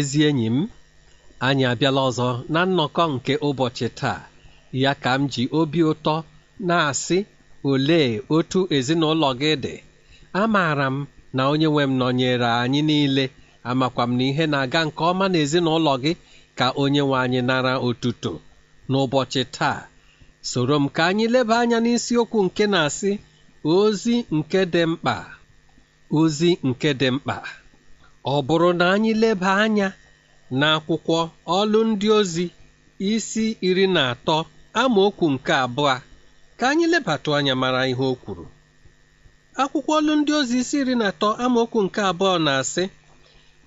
ezi enyi m anyị abịala ọzọ na nnọkọ nke ụbọchị taa ya ka m ji obi ụtọ na-asị ole otu ezinụlọ gị dị amaara m na onye nwe m nọnyere anyị niile amakwa m na ihe na-aga nke ọma na ezinụlọ gị ka onye nwe anyị nara otuto n'ụbọchị taa soro m ka anyị leba anya n'isiokwu nke na-asị ozi nke dị mkpa ozi nke dị mkpa ọ bụrụ na anyị leba anya n'akwụkwọ ọlụ ndị ozi isi iri na atọ amaokwu nke abụọ ka anyị lebatụ anya mara ihe o kwuru akwụkwọ ọlụ ndị ozi isi iri na atọ amaokwu nke abụọ na-asị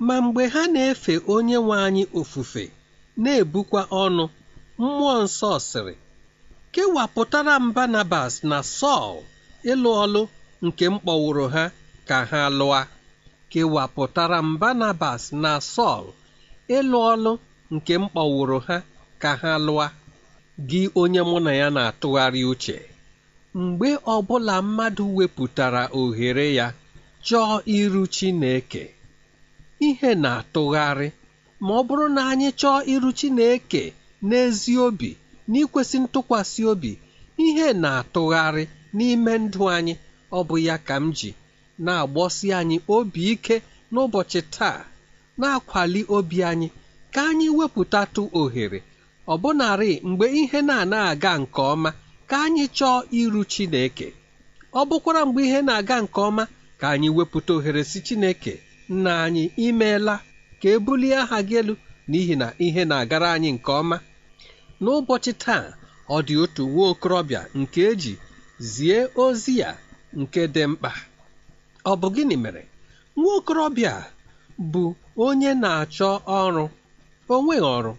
ma mgbe ha na-efe onye nwe anyị ofufe na-ebukwa ọnụ mmụọ nsọ sịrị kewapụtara m Barnabas na Sọl ịlụ ọlụ nke mkpọwụrụ ha ka ha lụa kewapụtara m Barnabas na Sọl ịlụ ọlụ nke m kpọwụrụ ha ka ha lụa gị onye mụ na ya na-atụgharị uche mgbe ọbụla mmadụ wepụtara ohere ya chọọ iru Chineke ihe na-atụgharị ma ọ bụrụ na anyị chọọ iru Chineke n'ezi obi n'ikwesị ntụkwasị obi ihe na-atụgharị n'ime ndụ anyị ọ bụ ya ka m ji na-agbọsi anyị obi ike n'ụbọchị taa na-akwali obi anyị ka anyị wepụtatụ ohere ọbụnarị mgbe ihe na-anaghị aga nke ọma ka anyị chọọ iru Chineke ọ bụkwara mgbe ihe na-aga nke ọma ka anyị wepụta ohere si Chineke nna anyị imeela ka e bulie aha gị elu n'ihi na ihe na-agara anyị nke ọma n'ụbọchị taa ọ dị otu nwa okorobịa nke eji zie ozi ya nke dị mkpa Ọ bụ gịnị mere nwa okorobịa bụ onye na-achọ ọrụ o nweghị ọrụ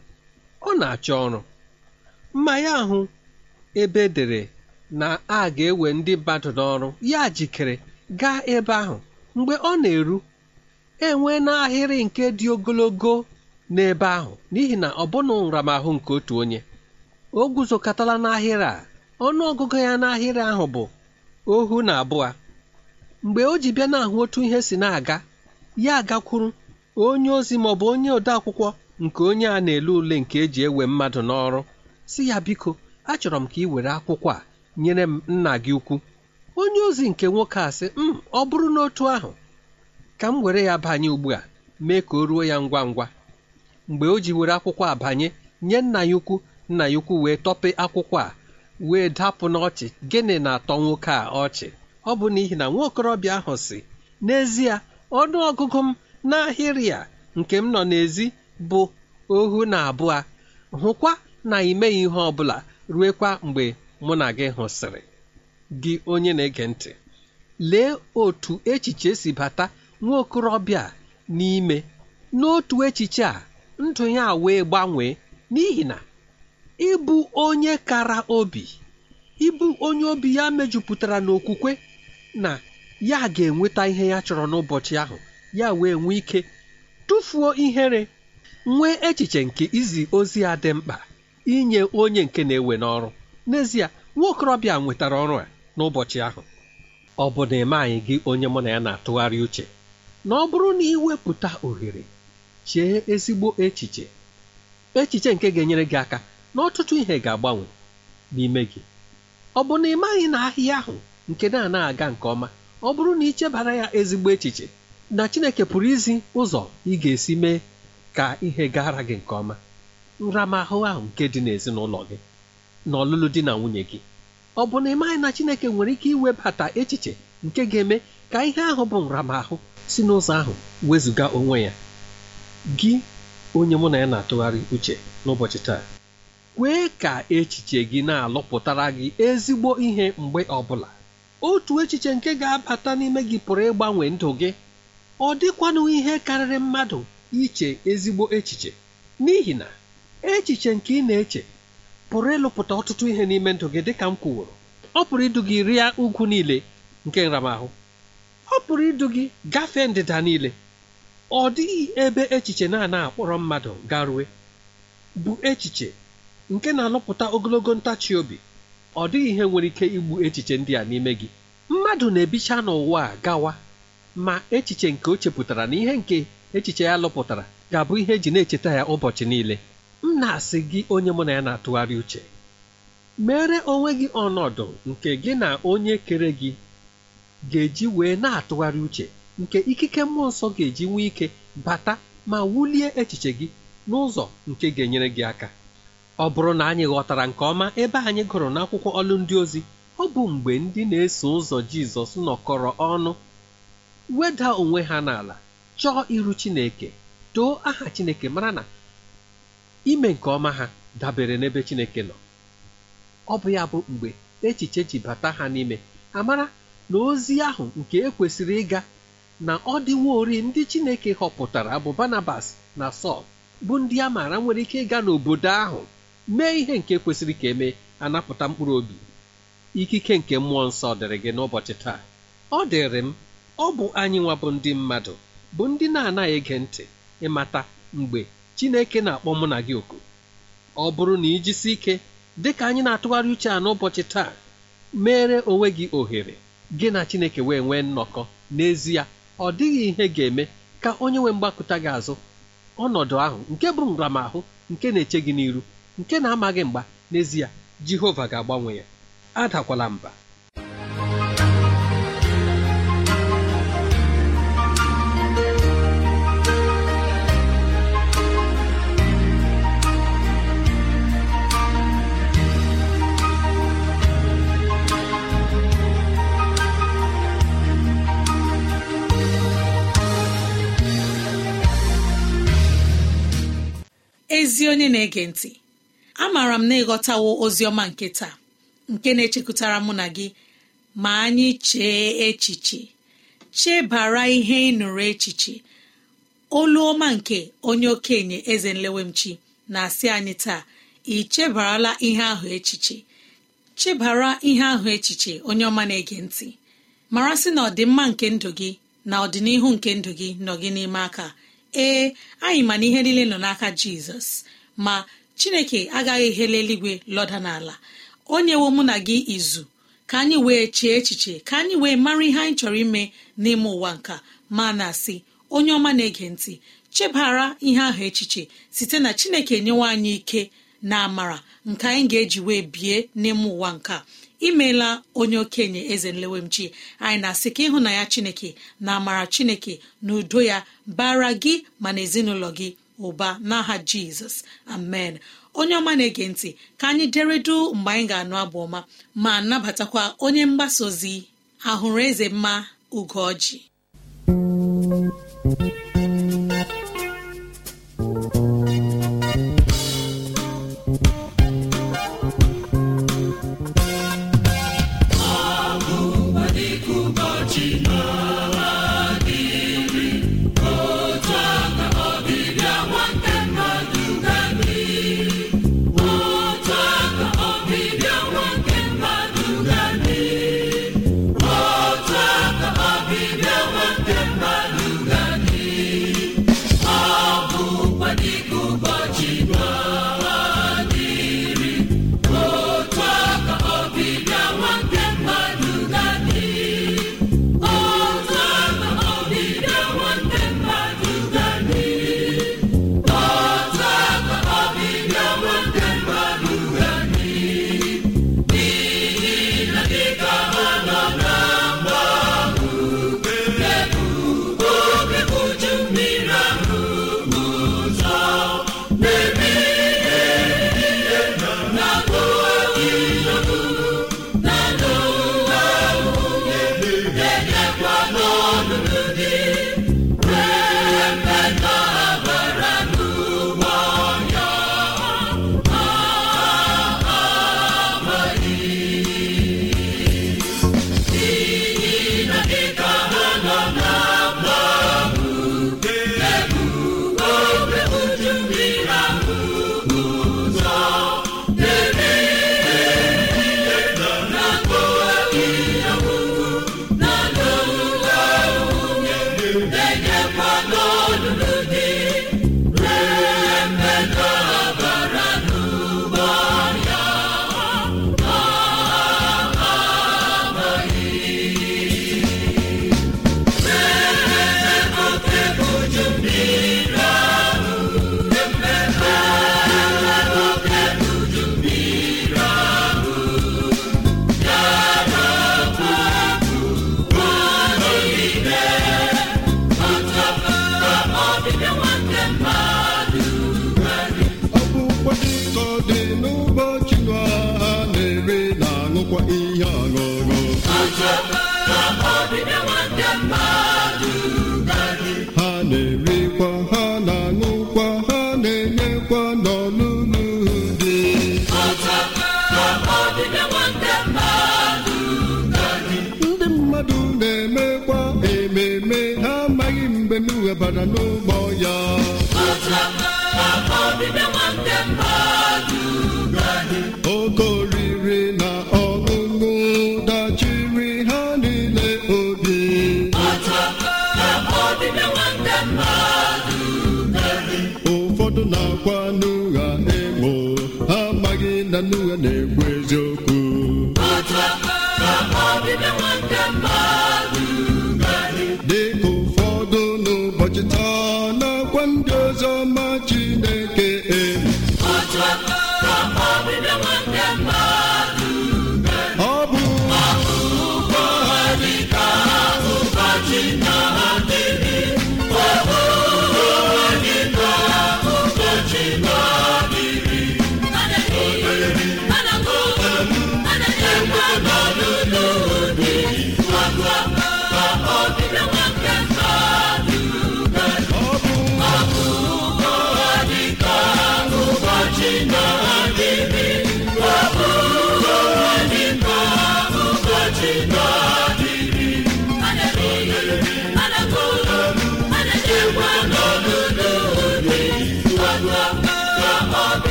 ọ na-achọ ọrụ mmanya ahụ ebe e dere na a ga-ewe ndị badụ n'ọrụ ya jikere gaa ebe ahụ mgbe ọ na-eru enwe n'ahịrị nke dị ogologo n'ebe ahụ n'ihi na ọ bụna nramahụ nke otu onye o guzokọtala n'ahịrị a ọnụ ọgụgụ ya n'ahịrị ahụ bụ ohu na abụọ mgbe o ji bịa n'ahụ otu ihe si na-aga ya agakwuru onye ozi ma ọ bụ onye odeakwụkwọ nke onye a na-ele ule nke eji ewe mmadụ n'ọrụ si ya biko achọrọ m ka ị were akwụkwọ a nyere m nna gị ukwu onye ozi nke nwoke a sị m mm, ọ bụrụ n'otu ahụ ka m were ya banye ugbu a mee ka o ruo ya ngwa ngwa mgbe o ji were akwụkwọ a banye nye nna ya ukwu nna ya ukwu wee tọpe akwụkwọ a wee dapụ n'ọchị gịnị na-atọ nwoke a ọchị ọ bụ n'ihi na nwaokorobịa ahụ si n'ezie ọnụ ọgụgụ m n'ahịrị a nke m nọ n'ezi bụ ohu na abụọ hụkwa na imeghị ihe ọ bụla ruekwa mgbe mụ na gị hụsịrị gị onye na-ege ntị lee otu echiche si bata nwa okorobịa n'ime n'otu echiche a ndụ ya wee gbanwee n'ihi na ịbụ onye kara obi ịbụ onye obi ya mejupụtara n'okwukwe na ya ga-enweta ihe ya chọrọ n'ụbọchị ahụ ya wee nwee ike tụfuo ihere nwee echiche nke izi ozi a dị mkpa inye onye nke na-ewe n'ọrụ n'ezie nwaokorobịa nwetara ọrụ a n'ụbọchị ahụ ọ bụ na eme anyị gị onye mụ na ya na-atụgharị uche na ọ bụrụ na iwepụta ohere chee ezigbo echiche echiche nke ga-enyere gị aka na ọtụtụ ihe ga-agbanwe n'ime gị ọ bụ na ị maghị na ahịa ahụ nke na-ana-aga nke ọma ọ bụrụ na ị chebara ya ezigbo echiche na Chineke pụrụ izi ụzọ ị ga-esi mee ka ihe gara gị nke ọma nramahụ ahụ nke dị n'ezinụlọ gị na ọlụlụ di na nwunye gị ọ bụ na ịmaghị na Chineke nwere ike iwebata echiche nke ga-eme ka ihe ahụ bụ nramahụ si n'ụzọ ahụ wezụga onwe ya gị onye mụ na ya na-atụgharị uche n'ụbọchị taa kwee ka echiche gị na-alụpụtara gị ezigbo ihe mgbe ọ bụla. otu echiche nke ga-abata n'ime gị pụrụ ịgbanwe ndụ gị ọ dịkwanụ ihe karịrị mmadụ iche ezigbo echiche n'ihi na echiche nke ị na-eche pụrụ ịlụpụta ọtụtụ ihe n'ime ndụ gị dịka m kwuworo ọ pụrụ idu gị rịa ugwu niile nke nramahụ ọ pụrụ idu gị gafee ndịda niile ọ dịghị ebe echiche na-ana akpọrọ mmadụ garue bụ echiche nke na-alụpụta ogologo ntachi obi ọ dịghị ihe nwere ike igbu echiche ndị a n'ime gị mmadụ na-ebicha n'ụwa a gawa ma echiche nke o chepụtara na ihe nke echiche ya lụpụtara ga-abụ ihe eji na-echeta ya ụbọchị niile m na-asị gị onye mụ na ya na-atụgharị uche mere onwe gị ọnọdụ nke gị na onye kere gị ga-eji wee na-atụgharị uche nke ikike mmụọ nsọ ga-eji nwee ike bata ma wulie echiche gị n'ụzọ nke ga-enyere gị aka ọ bụrụ na anyị ghọtara nke ọma ebe anyị gụrụ n'akwụkwọ ọlụ ndị ozi ọ bụ mgbe ndị na-eso ụzọ Jizọs nọkọrọ ọnụ weda onwe ha n'ala chọọ iru Chineke too aha Chineke mara na ime nke ọma ha dabere n'ebe Chineke nọ ọ bụ ya bụ mgbe echiche ji bata ha n'ime amara na ozi ahụ nke ekwesịrị ịga na ọ ori ndị Chineke họpụtara bụ Barnabas na Sọl bụ ndị a maara nwere ike ịga n'obodo ahụ mee ihe nke kwesịrị ka emee anapụta mkpụrụ obi ikike nke mmụọ nsọ dịrị gị n'ụbọchị taa ọ dịrị m ọ bụ anyị nwa bụ ndị mmadụ bụ ndị na-anaghị ege ntị ịmata mgbe Chineke na-akpọ mụ na gị oku ọ bụrụ na ijisi ike dị ka anyị na-atụgharị uche a n'ụbọchị taa mere onwe gị ohere gị na Chineke wee nwee nnọkọ n'ezie ọ dịghị ihe ga-eme ka onye nwe mgbakụta gị azụ ọnọdụ ahụ nke bụ nramahụ nke na-eche gị n'iru nke na-amaghị mgba n'ezie Jehova ga-agbanwe ya adakwala mba ezi onye na-ege ntị amaara m na ịghọtawo oziọma nke taa nke na echekwutara mụ na gị ma anyị chee echiche chebara ihe ịnụrụ echiche olu ọma nke onye okenye eze nlewemchi na-asị anyị taa ị chebarala ihe ahụ echiche chebara ihe ahụ echiche onye ọma na-ege ntị mara sị na ọdịmma nke ndụ gị na ọdịnihu nke ndụ gị nọ n'ime aka ee anyị ma na ihe niile nọ n'aka jizọs ma chineke agaghị hele eluigwe lọda n'ala onye nyewo mụ na gị izu ka anyị wee chee echiche ka anyị wee mara ihe anyị chọrọ ime n'ime ụwa nka ma na asị onye ọma na-ege ntị chebara ihe ahụ echiche site na chineke nyewe anyị ike na amara nke anyị ga-eji wee bie n'ime ụwa nka imeela onye okenye eze nlewemchi anyị na-asị ka ịhụ na ya chineke na amara chineke na udo ya bara gị ma na ezinụlọ gị ụba n'aha jizọs amen onye ọma na-ege ntị ka anyị deredu mgbe anyị ga-anụ abụ ọma ma nabatakwa onye mgbasa ozi ahụrụ eze mma ugoji debara n'ụgbọ ya oke oriri na ọṅụṅụ dachiri ha niile obi ụfọdụ na-akwa n'ụgha egbo ha amaghị na n'ụgha na-ekwu eziokwu dịka Wichita.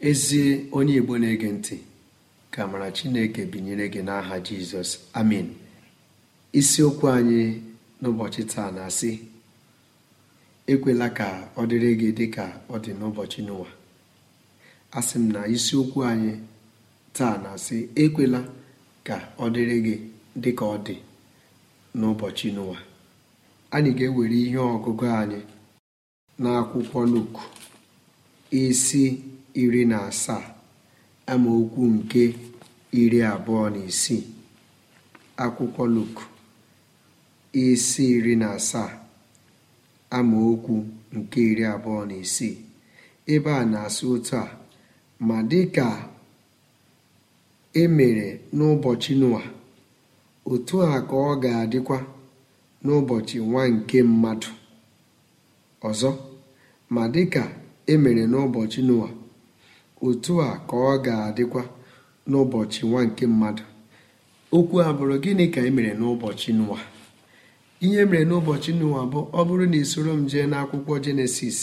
ezie onye igbo na-ege ntị ka mara chineke binyere gị n'aha jizọs amin isiokwu anyị n'ụbọchị taa na-asị ekwela ka ọ dịrị gị dị ka ọ dị n'ụbọchị n'ụwa asị m na isiokwu anyị taa na-asị ekwela ka ọ dịrị gị dị ka ọ dị n'ụbọchị n'ụwa anyị ga-ewere ihe ọgụgụ anyị n'akwụkwọ luk isi iri na asaa amaokwu nke iri abụọ na isii akwụkwọ Luk isi iri na asaa amaokwu nke iri abụọ na isii ebe a na-asị otu a ma dịka e mere n'ụbọchị Noa otu a ka ọ ga-adịkwa n'ụbọchị nwa nke mmadụ ọzọ ma dịka e mere n'ụbọchị Noa otu a ka ọ ga-adịkwa n'ụbọchị nwa nke mmadụ okwu a bụrụ gịnị ka e mere n'ụbọchị Noa ihe mere n'ụbọchị Noa bụ ọ bụrụ na isoro m jee n'akwụkwọ jenesis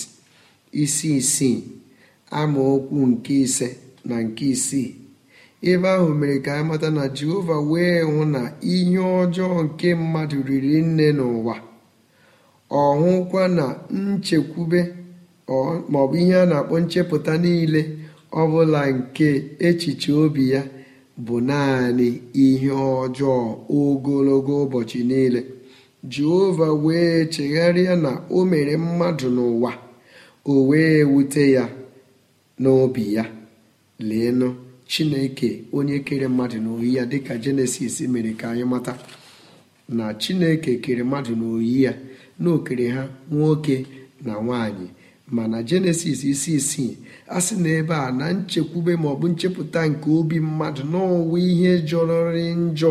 isi isii amaokwu nke ise na nke isii ebe ahụ mere ka amata na jehova wee hụ na ihe ọjọọ nke mmadụ riri nne n'ụwa ọ hụkwa na nchekwube maọbụ ihe a na-akpọ nchepụta niile ọbụla nke echiche obi ya bụ naanị ihe ọjọọ ogologo ụbọchị niile jehova wee chegharịa na o mere mmadụ n'ụwa o wee wute ya n'obi ya leenụ chineke onye kere mmadụ n'oyi ya dịka jenesis mere ka anyị mata na chineke kere mmadụ n'oyi ya n'okere ha nwoke na nwanyị ma na jenesis isi isii a sị na ebe a na nchekwube maọbụ nchepụta nke obi mmadụ n'ọnwa ihe jọrọrị njọ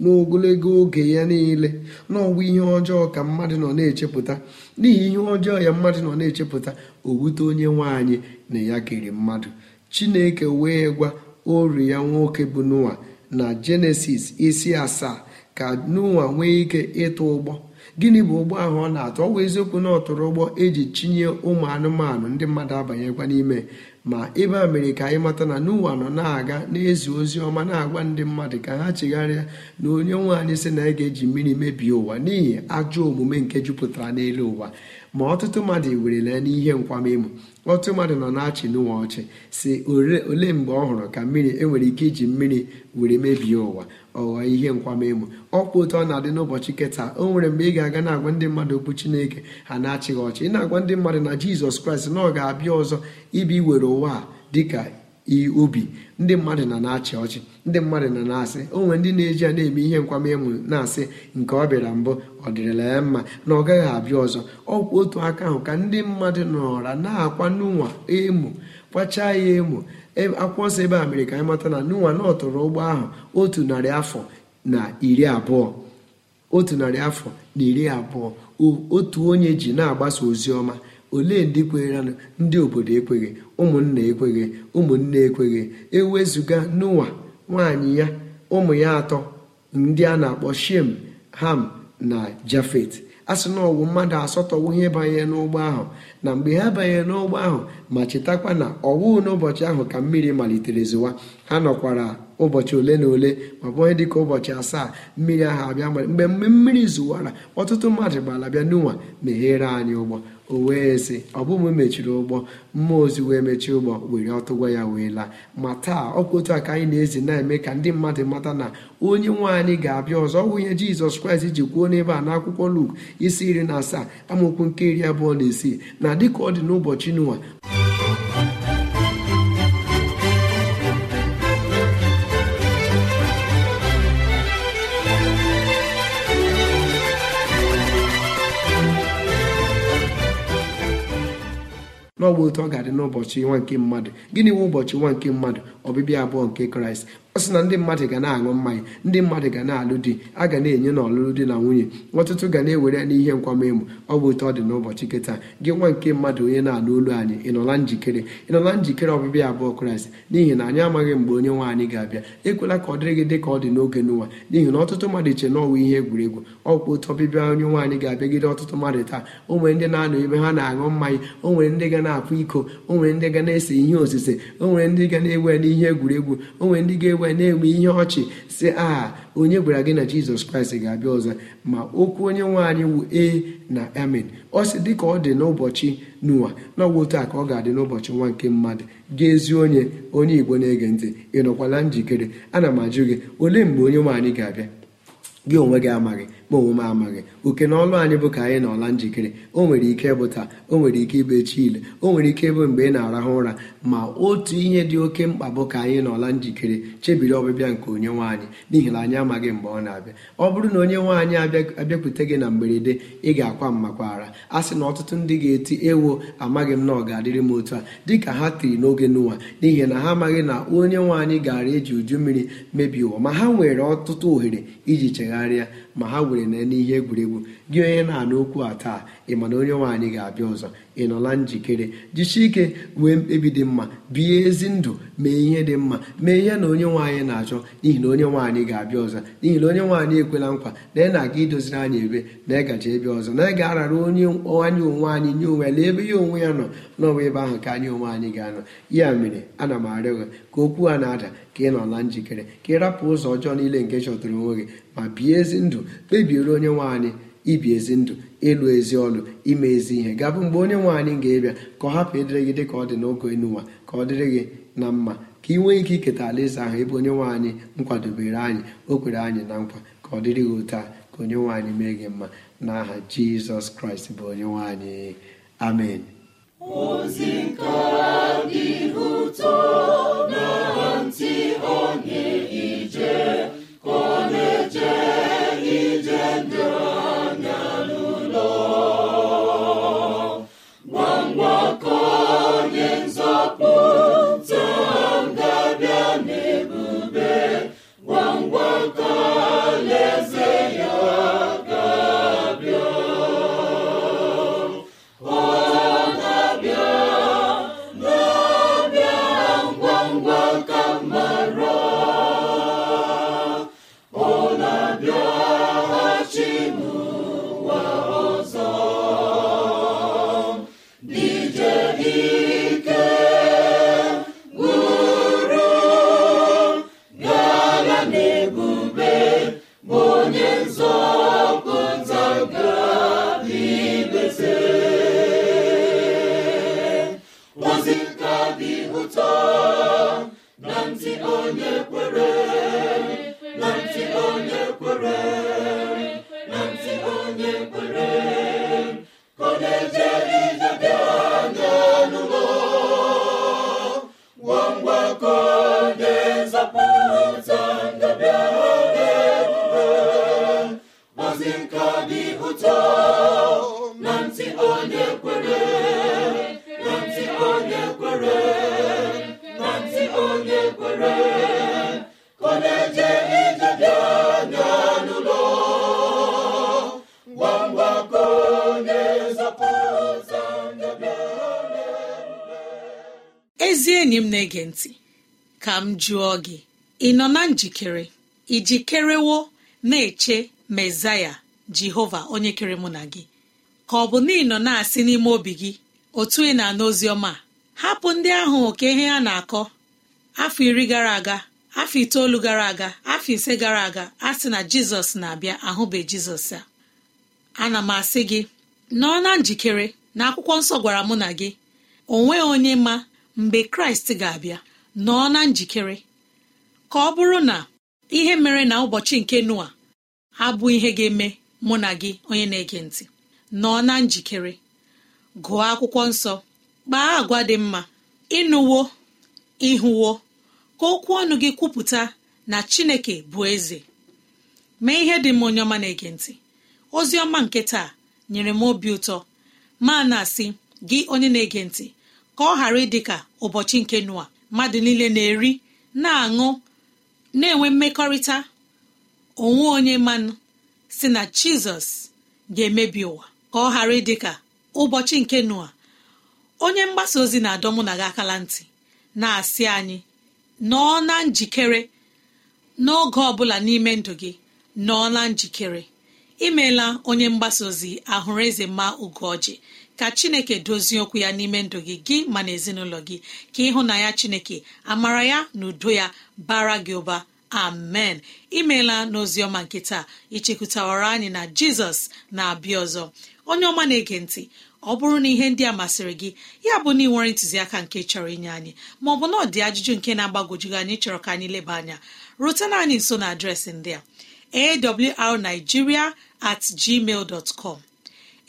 n'ogologo oge ya niile n'ọnwa ihe ọjọọ ka mmadụ nọ na-echepụta n'ihi ihe ọjọọ ya mmadụ nọ na-echepụta owute onye nwaanyị na ya kere mmadụ chineke wee gwa ori ya nwoke bụ noa na jenesis isi asaa ka noa nwee ike ịtụ ụgbọ gịnị bụ ụgbọ ahụ ọ na-atụ ọ bụ eziokwu na ọtụrụ ụgbọ eji chinye ụmụ anụmanụ ndị mmadụ abanyekwa n'ime ma ebe a mere ka anyị mata na n'ụwa nọ na-aga na-ezi ozi ọma na-agwa ndị mmadụ ka ha chegharịa na onye nwe anyị sị na anyị ga-eji mmiri mebie ụwa n'ihi ajọ omume nke jupụtara n'elu ụwa ma ọtụtụ mmadụ lee n'ihe nkwamemo ọtụtụ mmadụ nọ na-achị n'ụwa ọchị si ole mgbe ọ hụrụ ka mmiri enwere ike iji mmiri were mebie ụwa ọghọọ ihe nkwamemo ọkwa otu ọ na-adị n'ụbọchị keta o nwere mgbe ị ga-aga na-agwa ndị mmadụ okwu chineke ha na-achịghị ọchị ị na-agwa ndị mmadụ na jizọs kraịst na ọ ga-abịa ọzọ ibi were ụwa a dịka iyi ubi ndị mmadụ na na-achị ọchị ndị mmadụ na na-asị onwe ndị na-eji ya na-eme ihe nkwamemu na-asị nke ọ bịara mbụ ọ dịrịla ya mma na ọ gaghị abịa ọzọ ọkwa otu aka ahụ ka ndị mmadụ nọra na-akwa n'ụwa emo kwachaa ya emo akwụkwọ ebe a mere ka anyị mata na n'ụwa na ọ ụgbọ ahụ otu narị afọ na iri abụọ otu narị afọ na iri abụọ otu onye ji na-agbasa ozi ọma olee ndị kweranụ ndị obodo ekweghị ụmụnna ekweghị ụmụnne ekweghị ewezụga n'ụwa nwaanyị ya ụmụ ya atọ ndị a na-akpọ shem ham na jafet a sị na ọwụ mmadụ asọtọwo ihe banyere n'ụgbọ ahụ na mgbe ha banyere n'ụgbọ ahụ ma chetakwa na ọwụ n'ụbọchị ahụ ka mmiri malitere zụwa ha nọkwara ụbọchị ole na ole ma bụ onye dịka ụbọchị asaa mmiri ahụ abịa mgbe mgbe mmiri zụwara ọtụtụ mmadụ gbara bịa n'ụwa meghere anyị ụgbọ o wee ọ bụ mụ mechiri ụgbọ mmụọ ozi wee mechie ụgbọ were ọtụ gwa ya wee laa ma taa ọkwa otu a ka anyị na-ezi na-eme ka ndị mmadụ mata na onye nwe anyị ga-abịa ọzọ ọ bụ ihe jizọs kraịst ji kwuo n'ebe a n'akwụkwọ luk isi iri na asaa amaokwu nke iri abụọ na isii na dịka ọ dị n'ụbọchị n'ụwa n'ọgba otu ọ ga-adị n'ụbọchị nwa nke mmadụ gịnị nwe ụbọchị nwa nke mmadụ ọbịbịa abụọ nke kraịst ọ sị na ndị mmadụ ga na-aṅụ mmanya ndị mmadụ ga na-alụ di a ga na-enye na ọlụlụ di na nwunye ọtụtụ ga na-ewere n'ihe nkwamemo ọ bụ otu ọ dị n'ụbọchị kịta gị nwa nke mmadụ onye na-alụ olu anyị ịnọla njikere ịnọla njikere ọbịbịa abụọ kraịst n'ihi na anyị amaghị mgbe onye nwe anyị ga-abịa ekwela ka ọ dịrị gị dị ka ọ dị n'oge n'ụwa n'ihi na ọtụtụ mmadụ che na ọwa ihe egwuregwu ọkwa ụtọ ọbịbịa onye nwaanyị ga-abịagide ọtụtụ mmadụ taa o nwere ndị na-anọ ebe ha na-aṅụ mmanya o nwere ndị ga na-akwa iko o nwere ndị ga na-ese ihe osise o nwere ndị ga na-ewe n'ihe egwuregwu o nwere ndị ga-ewe wee na-enwe ihe ọchị si a onye gwara gị na jizọs kraịst ga-abịa ọzọ ma okwu onye nwe anyị wu ee na amen ọ sị ka ọ dị n'ụbọchị n'ụwa na taa ka ọ ga-adị n'ụbọchị nwa nke mmadụ gaa ezi onye onye igbo na-ege ntị ị nọkwala njikere ana m ajụ gị olee mgbe onye nwaanyị ga-abịa gị onwe gị amaghị onwe m amaghị oke na ọlụ anyị bụ ka anyị na ọla njikere o nwere ike ịbụ taa o nwere ike ịbụ echi ile o nwere ike ịbụ mgbe ị na-arahụ ụra ma otu ihe dị oke mkpa bụ ka anyị na ọla njikere chebiri ọbịbịa nke onye nwaanyị n'ihi na anyị amaghị mgbe ọ na-abịa ọ bụrụ na onye nwaanyị abịakwute gị na mberede ị ga-akwa mmakwara a sị na ọtụtụ ndị ga-eti ewo amaghị m na ọ ga-adịrị m otu a dịka ha tiri n'oge n'ụwa n'ihi na ha amaghị na onye nwaanyị gara eji uju mmiri mebie ụwa ma ha nwere ọtụtụ ohere iji chegharịa ma ha were na n'ihe egwuregwu gị onye na-anụ okwu a taa ị ma na onye nwaanyị ga-abịa ọzọ ị nọla njikere jichi ike nwee mkpebi dị mma bie ezi ndụ mee ihe dị mma mee ihe na onye nwaanyị na-achọ n'ihi na onye nwaanyị ga-abịa ọzọ n'ihi na onye nwaanyị ekwela nkwa na ị na-aga idoziri anyị ebe na ịgaji ebe ọzọ na ị ga-arara onye anyị onwe anyị nye onwe na ebe ya onwe ya nọ n'ọnwa ebe ahụ ka anyị onwe anyị ga-anọ ya mere ana m arịọ gị ka okwu a na-ada ka ị nọla njikere ka ị rapụ ụzọ ọjọọ niile nke chọtara onwe gị ma bie ezi ndụ kpebiere onye nwaanyị ibi ezi ndụ ịlụ ezi ọlụ ime ezi ihe gabụ mgbe onye nwaanyị ga-ebịa ka ọ hapụ ịdịrị gị dị ka ọ dị n'oge enuwa ka ọ dịrị gị na mma ka ị nwee ike iketa alaeze ahụ ebe onye nwanyị anyị nkwadobere anyị o kwere anyị na nkwa ka ọ dịrị gị otu a ka onye nwanyị mee gị mma n'aha jizọs kraịst bụ onye nwanyị amen ozi nke dị ụtọ na ntị onye ije ka ọ ije m jụọ gị ị nọ na njikere iji kerewo na-eche mezaya jehova onye kere mụ na gị ka ọ bụ na ị nọ na-asị n'ime obi gị otu ị na-ana oziọma hapụ ndị ahụ oke ihe ha na-akọ afọ iri gara aga afọ itoolu gara aga afọ ise gara aga a sị na jizọs na-abịa ahụbe jizọs a ana m asị gị nọ na njikere na akwụkwọ nsọ gwara mụ na gị onwe onye ma mgbe kraịst ga-abịa nọọ na njikere ka ọ bụrụ na ihe mere na ụbọchị nke noa abụ ihe ga-eme mụ na gị onye na-ege ntị nọọ na njikere gụọ akwụkwọ nsọ kpaa agwa dị mma ịnụwo ịhụwo ka okwu ọnụ gị kwupụta na chineke bụ eze mee ihe dị m onye ọma na-ege ntị ozi ọma nke taa nyere m obi ụtọ ma na-asị gị onye na-ege ntị ka ọ ghara ịdị ka ụbọchị nke noa mmadụ niile na-eri na-aṅụ na-enwe mmekọrịta onwe onye mmanụ si na jizọs ga-emebi ụwa ka ọ ghara ịdị ka ụbọchị nke noa onye mgbasa ozi na-adọ na gị ntị na-asị anyị nọọ na njikere n'oge ọ bụla n'ime ndụ gị nọọ na njikere imeela onye mgbasa ozi ahụrụ eze mma ugoji ka chineke dozie okwu ya n'ime ndụ gị gị ma na ezinụlọ gị ka ịhụ na ya chineke amara ya na udo ya bara gị ụba amen imeela ọma nke taa ichekwutawara anyị na jizọs na-abịa ọzọ onye ọma na-ege ntị ọ bụrụ na ihe ndị a masịrị gị ya bụ na ị nwere ntụziaka nke chọrọ inye anyị maọbụ na ọ dị ajụjụ nke na-agbagojugị anyị chọrọ ka anyị leba anya rutena anyị nso na adreesị ndị a awrnigeria at com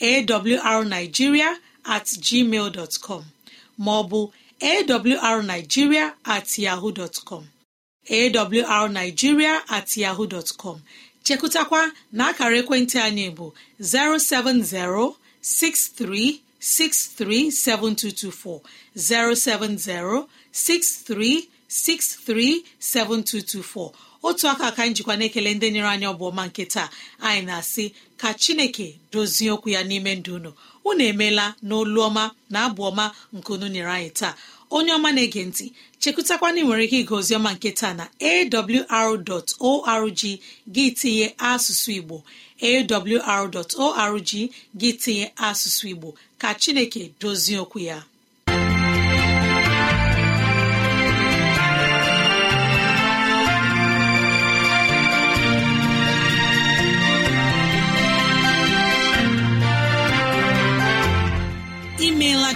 awrnigeria at com ma ọ bụ awrnigeria at yahoo dot com awrnigeria at yahoo dot bụ 070-6363-7224 070-630. 637224 otu aka ka njikwa na-ekele ndị nyere anyị ọbụọma nke taa anyị na-asị ka chineke dozie okwu ya n'ime ndụ unu unu emeela n'olu na abụ ọma nke unu nyere anyị taa onye ọma na-ege ntị chekụtakwana ị nwere ike ige ọma nke taa na awr.org gị tinye asụsụ igbo awr.org gị tinye asụsụ igbo ka chineke dozie okwu ya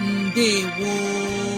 ndewo